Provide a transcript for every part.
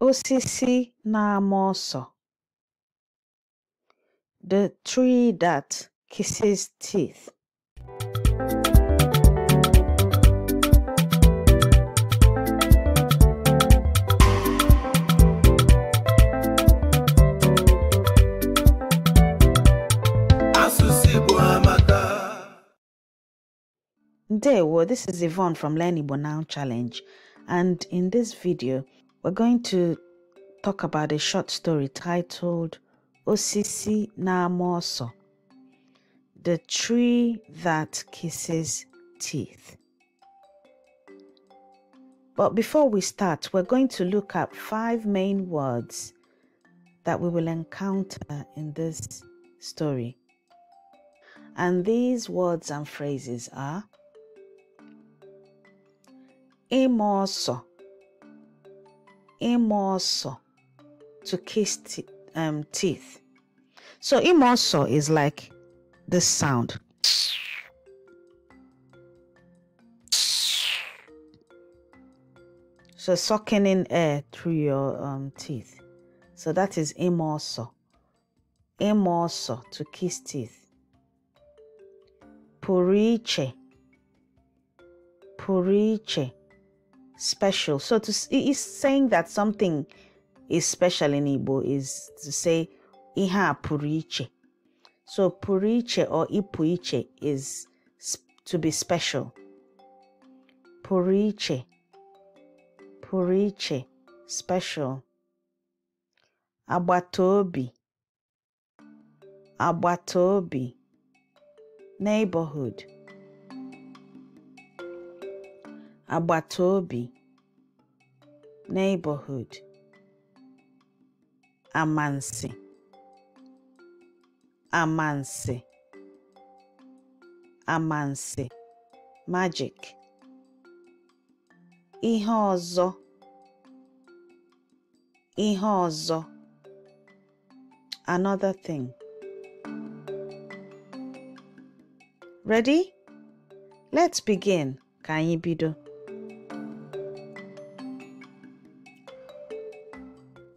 Osisi na-ama ọsọ The tree that kisses teeth. Ndewo, this is Yvonne from Learn Igbo Now Challenge and in this video we're going to talk about a short story titled Osisi Namoso, the tree that kisses teeth. But before we start, we're going to look at five main words that we will encounter in this story. And these words and phrases are Imoso, imoso to kiss um, teeth. So imoso is like this sound. So sucking in air through your um, teeth. So that is imoso. Imoso to kiss teeth. Puriche. Puriche special. So to is saying that something is special in Igbo is to say iha puriche. So puriche or ipuiche is to be special. Puriche. Puriche. Special. Abatobi, Abatobi, Neighborhood. Abatobi neighborhood amansi amansi amansi magic ihe ọzọ ihe ọzọ another thing ready let's begin ka anyị bido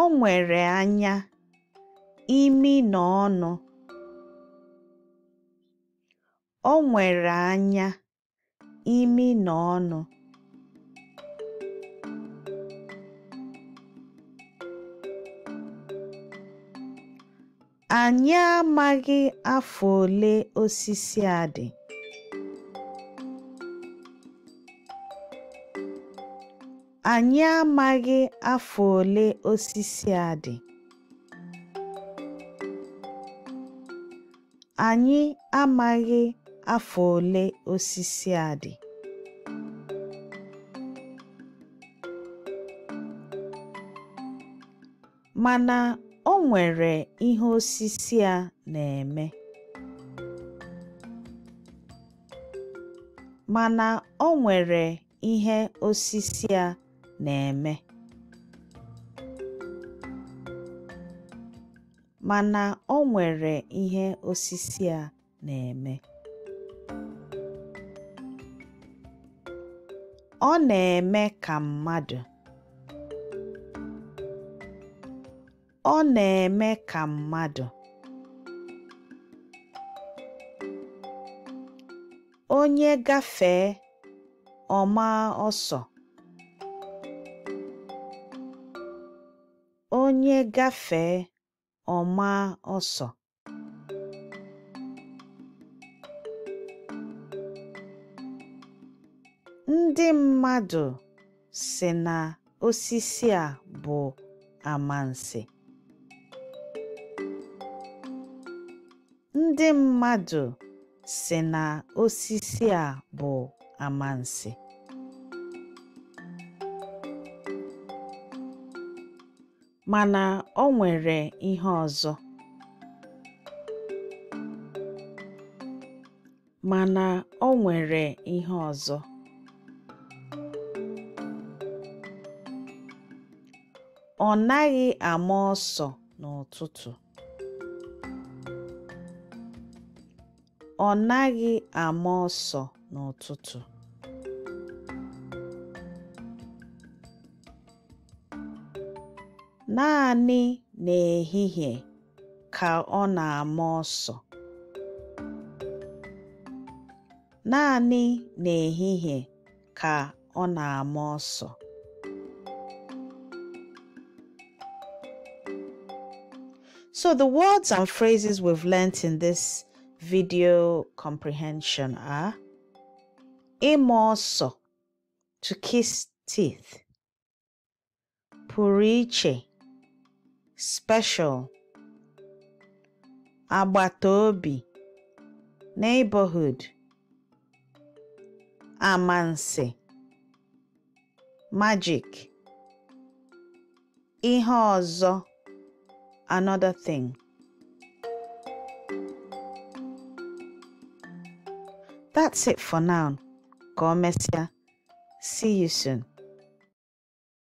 O nwere anya, imi na ọnụ. anya, Anyị amaghị afọ ole osisi a dị. Anyị amaghị afọ ole osisi a dị, a Mana o nwere ihe osisi a na-eme. Mana o nwere ihe osisi a na-eme mana o nwere ihe osisi a na-eme ọ na-eme ka mmadụ na-eme ka mmadụ onye gafee ọma ọsọ onye gafee, ọ maa ọsọ Ndị mmadụ sị na osisi a bụ amansi. a bụ amansi. mana o nwere ihe ọzọ mana o nwere ihe ọzọ ọ naghị ama ọsọ n'ụtụtụ ọ naghị ama ọsọ n'ụtụtụ naanị n'ehihie ka ọ na-ama ọsọ naanị n'ehihie ka ọ na-ama ọsọ So the words and phrases we've learnt in this video comprehension are imoso to kiss teeth puriche special, agbataobi, neighborhood, amansi, magic, ihe ọzọ, another thing. That's it for now. Go messia. See you soon.